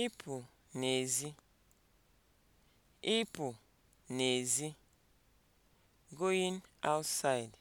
Ịpụ n'ezi. Ịpụ n'ezi. (going outside)